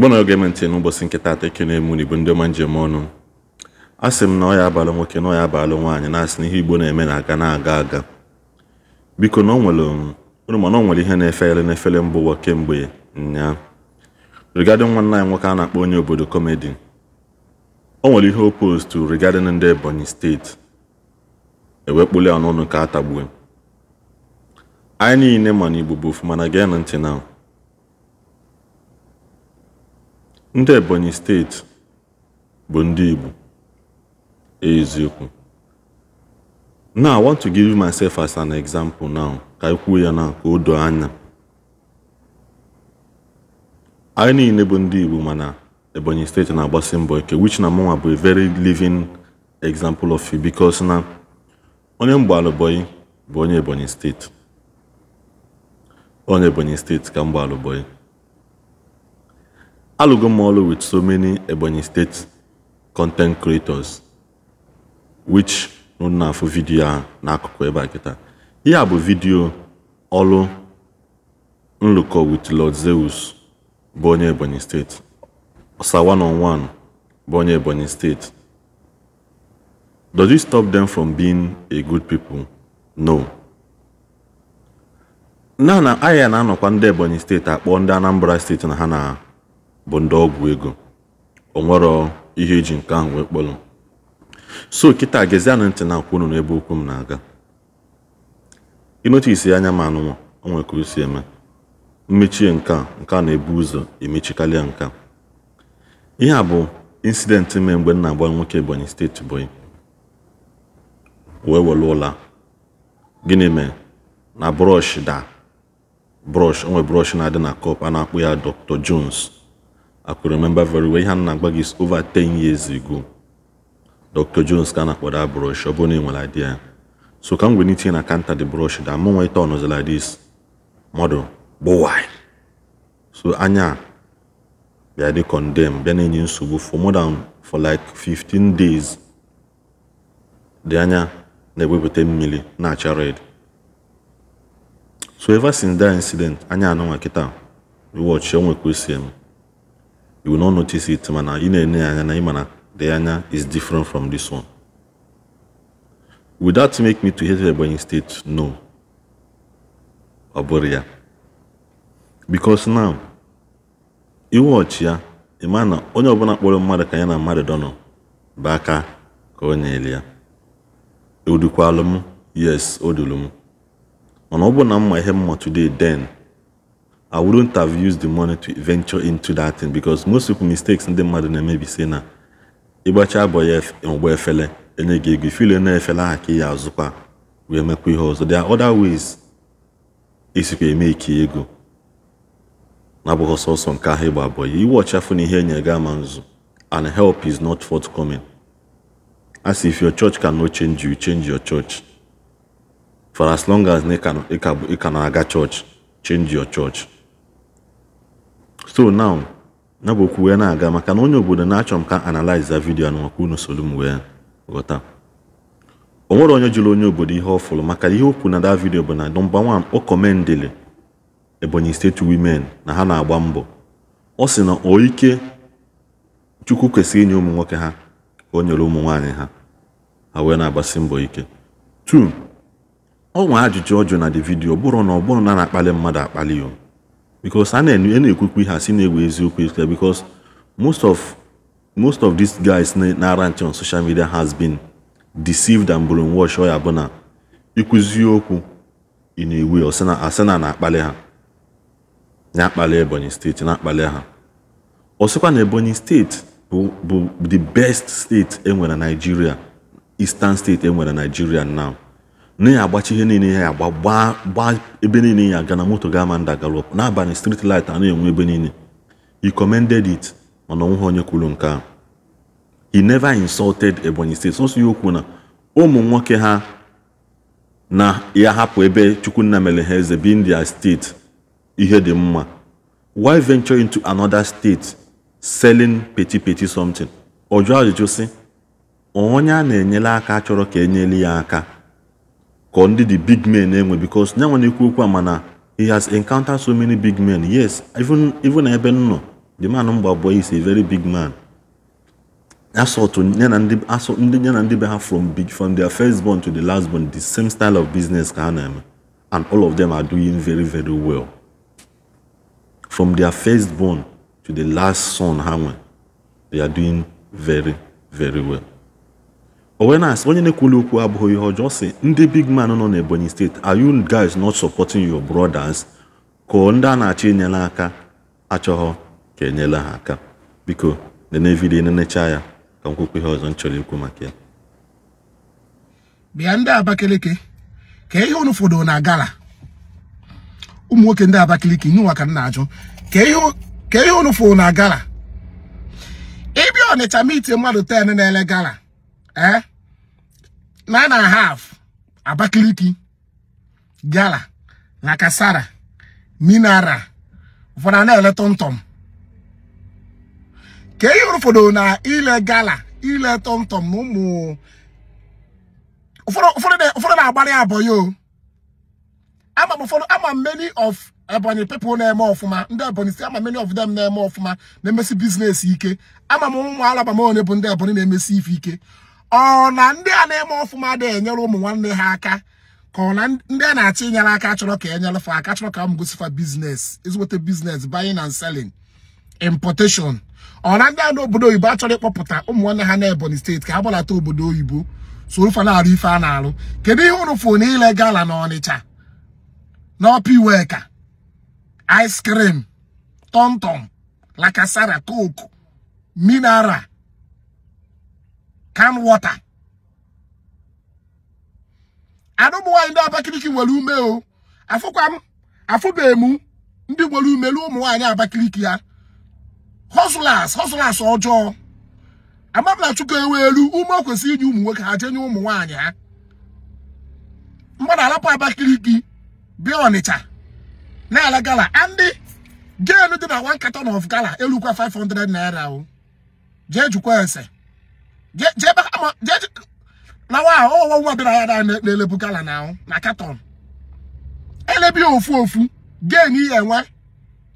igbo na oge ntị n'ụbọchị nke taata eke na-emu n'igbo ndị ọma njem ọnụ a sị m na ọ ya abalụ nwoke na ọ ya abalụ nwaanyị na-asị na ihe igbo na-eme na-aga na-aga aga biko na ọ nwere mana ọ nwere ihe na efere n'efere efere ụwa kemgbe nyaa nwa nna anyị nwoke a na-akpọ onye obodo kọmedi o nwere ihe o postu rigadịn ndị ebonyi steeti e ewekpuli ya n'ọnụ ka a tagbue anyị niile ma na igbo bụ ofuma na gee ntị na Ndị Ebonyi steeti bụ ndị Igbo, eziokwu? Na I want to give myself as an example now ka anyị e ya na ka o doo anya. Anyị niile bụ ndị Igbo mana Ebonyi steeti na-agbasi mbọ ike which na mụnwa bụ a very living example of you, because na onye mgbaalụbọyị bụ onye Ebonyi steeti. Onye Ebonyi steeti ka mgbaalụbọyị. alụgo m ọrụ with so many Ebonyi State content creators which nụ na-afụ vidiyo n'akụkụ ebe a kịta ihe a bụ vidiyo ọrụ nlụkọ wit Lord Zeus bụ onye Ebonyi State Osa one on one bụ onye Ebonyi State does it stop them from being a good people no na na ahịa na-anọkwa ndị Ebonyi State akpọ ndị Anambra State na ha na bụ ndị ọgwụ ego onwero ihe eji nke ahụ wee kpọrọ so kịta gezie ntị na-akwụ unu n'ebe okwu m na-aga ịnotisi anya ma anụmanụ o nwere ka o eme mmechie nke a nke a na-ebu ụzọ emechikarịa nke a ihe a bụ insidenti mee mgbe nna na-agba nwoke Ebonyi steeti Ebonyi wee were ụla gịnị mee na brọsh da brọsh onwe brọsh na-adị na kọp a na akpụ ya Dr. Jones I could remember very well ihe nna agba is over 10 years ago Dr. Jones ka a that brush ọ bụrụ na ị so come m wee n'itinye na counter the brush da mụ nwe ite ọnọzi like this model gbowai so anya bịa dị condemn bịa na-enye nsogbu for more than for like 15 days dị anya na-ewepụta mmiri na-acha red so ever since that incident anya anụnwa kịta watch onwe kwesịrị m you will not notice it mana you na-enye anya na na the anya is different from this one would that make me to hate Ebonyi state no ọ ya because now iwọchi ya ịma na onye ọbụla kpọrọ mmadụ ka ya na mmadụ dọnọ bụ aka ka onye nyere ya odukwalụ e m yes odulu m mana ọ bụ na mma ihe mma today den. I wouldn't have used the money to venture into that thing because most people mistakes ndị mmadụ na-eme bi na ịgbacha abọ ụgbọ efele enye gị ego ifile na-efele aha ka ya azụkwa wee mekwa ihe ọzọ there are other ways esikwa eme ike ego na-abụghị sọsọ nke ahụ ịgba abọ iwe ọchafụ na ihe enye gị and help is not forthcoming as if your church can no change you change your church for as long as ị ka na-aga church change your church so now ya bụ okwu wee na-aga maka na onye obodo na-achọ m ka analize vidio a maka unu solu m wee ghọta o nwere onye jụrụ onye obodo ihe ọ maka ihe okwu na da vidio bụ na nọmba wan o kọmendịlị Ebonyi steeti wimen na ha na-agba mbọ ọ sị na o ike Chukwu kwesịrị inye ụmụ nwoke ha ka o nyere ụmụ nwaanyị ha ha wee na-agbasi mbọ ike tu ọ nwe ajụjụ ọjụụ na dị vidio bụrụ na ọ bụrụ na na-akpali mmadụ akpali o because a na-ekwukwa ihe a egwu eziokwu eziokwu because most of most of these guys na on social media has been deceived and brainwashed oya ya bụ na ịkụzi okwu ị na asena na-akpali ha na-akpali Ebonyi steeti na-akpali ha ọ sịkwa na Ebonyi steeti bụ the best steeti enwere na Nigeria Eastern state enwere na Nigeria now na ya agbachie ihe niile ya agba gbaa ebe niile ya aga na moto ga-ama nda galop n'abalị street light a na-enwe ebe niile he commended it mana onweghị onye kwuru nke ahụ he never insulted Ebonyi steeti sọsọ ya okwu na ụmụ nwoke ha na ya hapụ ebe Chukwunna mere ha eze bi India steeti ihe dị mma why venture into another state selling peti peti something ọ jụọ ajụjụ sị onye a na-enyere aka chọrọ ka enyere ya aka ka ndị the big men na-enwe eh, because nyanwa na-ekwu okwu a mana he has encountered so many big men yes even even ebe nọ the man mgba abụọ is a very big man assault ya na ndị assault ndị ya na ndị be ha from big from their first born to the last born the same style of business ka ha na-eme eh, and all of them are doing very very well from their first born to the last son ha nwe they are doing very very well owenas onye na-ekwuli okwu abụghị ihe ọjọọ si ndị big man nọ n'ebonyi steeti are you guys not supporting your brothers ka ndị a na-achọ enyela aka achọghọ ka enyela ha aka biko nene vidiyo nenecha ya ka m kwukwu ihe ọzọ m chọrọ ikwu maka ya bịa ndị abakeleke ka ihe unu fọdụrụ na gala ụmụ nwoke ndị abakeleke nụwa ka m na-ajụ ka ihe unu fọdụrụ na gala ịbịa ọnịcha miti mmadụ ten na-ele gala ee eh? nine and a half abakiliki Gala na Kasara Minara ụfọdụ ele tọmtọm ka ihe ụfọdụ na ile gala e ile tọmtọm na ụmụ ụfọdụ na-agbara ya ama m ụfọdụ ama many of Ebonyi eh, people na-eme ọfụma ndị Ebonyi si ama many of them na-eme ọfụma na-emesi biznes ike ama m ụmụ alaba m onye bụ ndị Ebonyi na-emesi ife ike ọ na ndị a na-eme ọfụma dị enyere ụmụ nwanne ha aka ka ọ na ndị a na-achọ inyere aka chọrọ ka enyelefa aka chọrọ ka m gosifa biznes ezigbote biznes buying and selling importation ọ na ndị a obodo oyibo achọrọ ịkpọpụta ụmụ nwanne ha na Ebonyi steeti ka ha gbalata obodo oyibo so ofe na-arụ ife a na-arụ kedu ihe ụrụ fụ na gala na Ọnịcha n'ọpa iweka ice cream tọmtọm lakasara coke mineral can water anụmụ ndị Abakaliki nwere ume o afụkwa m ndị nwere ume na ụmụ nwaanyị Abakaliki ya hustlers hustlers ọjọọ amabla chukwu ewe elu ume o kwesịrị inye ụmụ nwoke ha jenye ụmụ nwaanyị ha mgbada alapụ abakiliki bịa Ọnịcha na-ala gala ndị genu dị na one carton of gala elukwa 500 naira o jee jukwa ese jebe ama na wa ya na lebu gala na na katọn elebi ofu ofu gain ihe enwe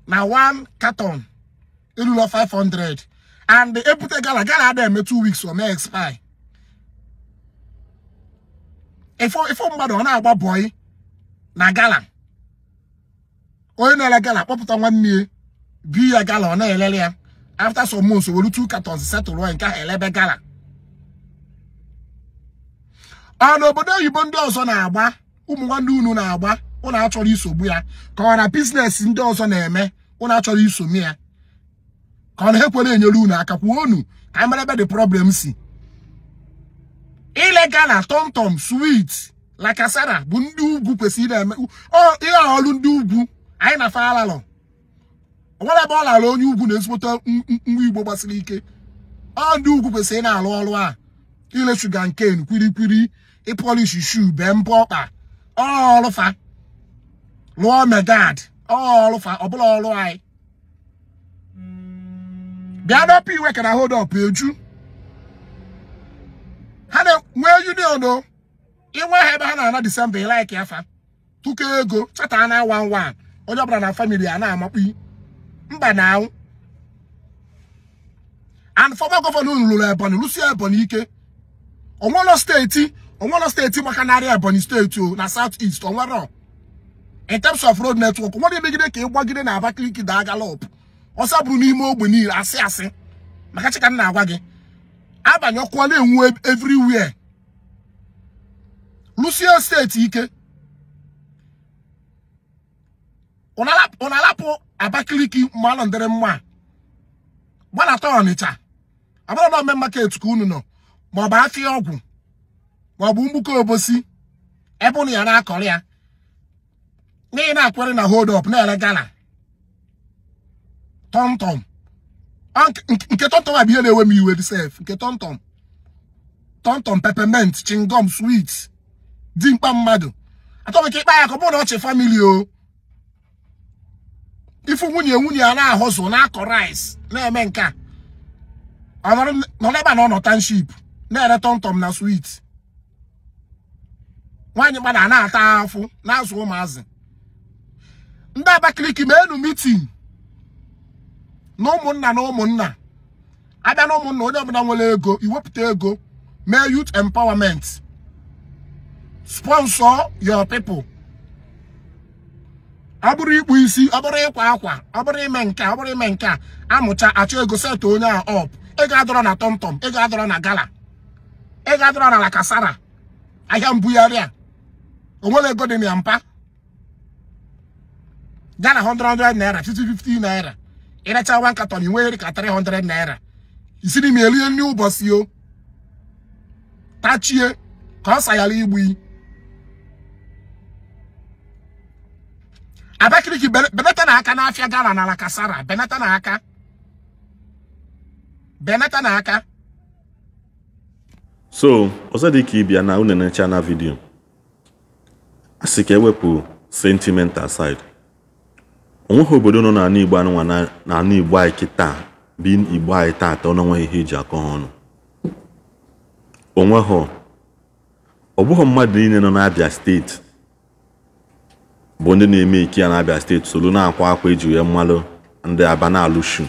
na one katọn erulo 500 and ebute gala gala ada eme 2 weeks o mee expire ifo mgbada ọ na-agba bọị na gala onye na-ele gala kpọpụta nwanne ya bi ya gala ọ na-elele ya after some months were two katọns setụl nke elebe gala a ah, n'obodo oyibo ndị ọzọ na-agba ụmụ nwanne unu na-agba ụnụ achọrọ isogbu ya ka ọ na biznes ndị ọzọ na-eme ụnụ achọrọ isogbu ya ka ọ na-ekwere enyere unu aka kwuo unu ka amara ebe dị problem si ilegal na tomtom swit la kasara bụ ndị ugwu kwesịrị na-eme ihe ọrụ ndị ugwu anyị na falalọ onwere ebe ọ lara onye ugwu na-ezigbote nwa igbo gbasiri ike ọ ndị ugwu kwesịrị na-alụ ọrụ a ile shuga nken kwirikwiri ịpolish shu bee mbọ ọkpa ọlụfa lụọ megad ọlụfa ọbụla ọlụ anyị bịa dọpụ iwe ka na hold eju ha na-nwee union o inwe ha ebe ha na-ana disemba ilaik afa tụkọ ego chata na wan wan onye ọbụla na famili a na-amakpi mba na anwụ and former gọvanọ lụrụ ebonyi lụsie ebonyi ike ụlọ steeti onwere steeti maka narị Ebonyi steeti o na South East onwere in terms of road network nwere emegide ka gbagide na Abakaliki daa galop ọsa bụrụ n'ime ogbe niile asị asị maka chika na-agwa gị abanye ọkụ na-enwu e, everywhere lusie steeti ike ụ na-alapụ Abakaliki malụ ndịrị mma gbanata Ọnịcha abụrụ na ome market ka unu nọ maọbụ afịa ọgwụ ma ọ mgbuke obosi ebe ụnụ ya na-akọrọ ya n'ihi na-akwere na hold up na-ere gala tọmtọm nke a bụ ihe na-ewe m iwe sef nke tọmtọm tọmtọm peppermint chingom sweet dimkpa mmadụ atọmike ịkpa ya ka ọ bụrụ na ọchị famili o ifu nwunye nwunye a na-ahụzụ na-akọ rice na-eme nke a ọ nọ n'ebe a na ọ nọ township na-ere tọmtọm na swit. nwaanyị gbada na-ata afọ na-azụ ụmụazị ndị Abakaliki ma enu mitin na ụmụnna na ụmụnna abịa na ụmụnna onye ọbụla nwere ego iwepụta ego mee youth empawament sponsor your people ọ bụrụ ikpu isi ọ bụrụ ịkwa akwa ọ bụrụ ime nke ọ bụrụ ime nke a amụcha achọ ego setụ onye a ọp ego adọrọ na tọmtọm ego adọrọ na gala ego adọrọ na lakasara ahịa mbugharị a onwere ego dị ya mpa gaa na 100 naira 50 naira ịracha nwa nkatọ na inwegheri ka 300 naira isi n'ime erie nri ụbọchị o tachie ka ọ sayara igbu Abakaliki benata na aka n'afịa gara n'ala kasara benata na aka benata na aka so ọzọ dị ka ịbịa na unene chana vidiyo a ka ewepụ sentiment aside onweghị obodo nọ n'ala Igbo anụnwa na ala Igbo anyị kịta bi Igbo anyị taata ọ n'onweghị ihe eji akọ ha ọnụ onweghị ọ bụghị mmadụ niile nọ n'Abia steeti bụ ndị na-eme ike ya n'Abia steeti soro na-akwa akwa eji wee mmalụ ndị aba na-alụshu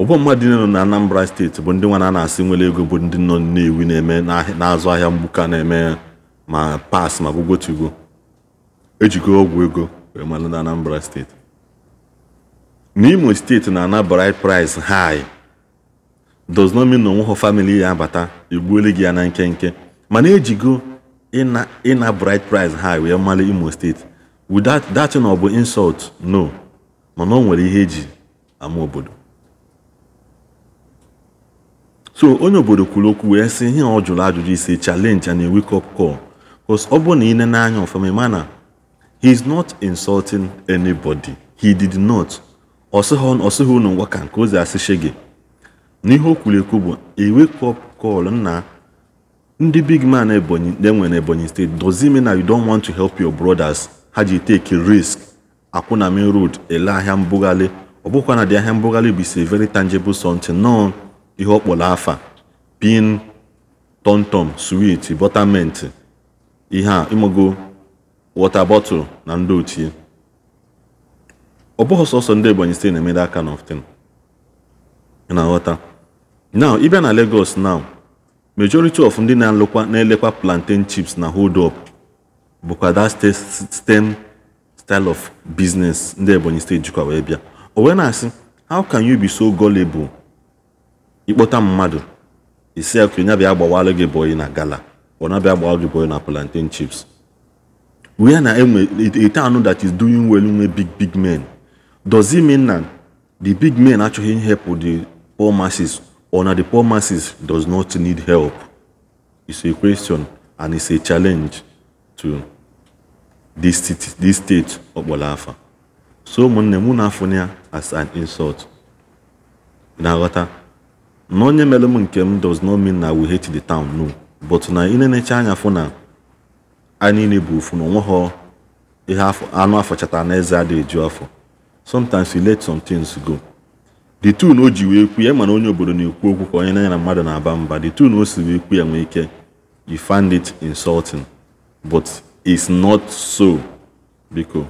ụgbọ mmadụ niile nọ na Anambra steeti bụ ndị nwa na-asị nwere ego bụ ndị nọ ewi na-eme na-azụ ahịa mgbuka na-eme ma pass ma bụ gwotugo ejigo ọgwụ ego wee malụ na Anambra steeti n'Imo steeti na-ana bride price high does not mean na onweghọ famili ya abata egbuole gị ya na nkenke mana ejigo ịna bride price high wee mali Imo steeti without that na ọ bụ insult no mana o nwere ihe eji ama obodo so onye obodo kwuru okwu wee sị ihe ọ jụrụ ajụjụ ise challenge and a wake up call ọ bụrụ na ị nene anya ọfụma ma na he is not insulting anybody he did not ọsịghị unu ngwa ka nke ozi asịshe gị n'ihe o kwuru ekwu bụ ewake up call nna ndị big man ebonyi na-enwe na ebonyi steeti dozie mean na you don't want to help your brothers ha you take risk akwụna main road ele ahịa mbugharị ọ bụkwa na dị ahịa mbugharị bụ very tangible something nọ ihe ọ afa pin tomtom sweet buttermint ihe a ịmago wọta bọtụl na ndị ochie ọ bụghị sọsọ ndị Ebonyi steeti na-emede aka na often na-aghọta now ịbịa na Lagos now majority of ndị na-alụkwa elekwa plantain chips na hold up bụkwa that stem style of business ndị Ebonyi steeti jikwa wee bịa o wee na-asị how can you be so gullible ịkpọta mmadụ isi ya ka onye bịa gị na gala ọ na-abịa gba ajụgwọ na plantain chips where na enwe a town that is doing well nwe big big men does it mean na the big men achọghị help the poor masses or na the poor masses does not need help it's a question and it's a challenge to this state this state ọkpọrọ so ụmụnne mụ na-afụnye ya as an insult na-aghọta na onye mere m nke m does not mean na we hate the town no but na ị na-enecha anya fụ na anyị niile bụ ofu na onweghị ihe anụ afọ chata na eze adịghị afọ sometimes you let some things go the tune o ji wee kwu ya mana onye obodo na-ekwu okwu ka onye na ya na mmadụ na-aba mba the tune o si wee kwu ya nwee ike you find it insulting but it's not so biko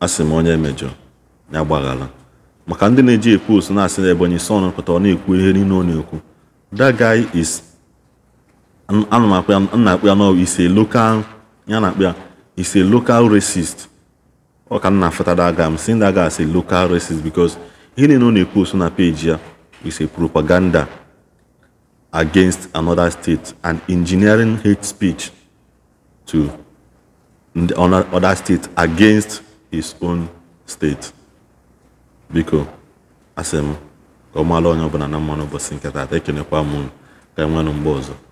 asị m onye emejọ ya gbaghara maka ndị na-eji ekwu osu na-asị na Ebonyi son pụtara ọ na-ekwu ihe niile ọ na-ekwu that guy is ana m akpụ ya nna ise ya na akpụ ya ise local racist ọ ka nna afụta that m I'm saying that local racist because ihe niile ọ na-ekwu oso na peji ya is propaganda against another state and engineering hate speech to other state against his own state biko asị m ka ọ maala onye ọbụla na mmanụ ụbọchị nke taata ekenekwa m ka enwe mgbe ọzọ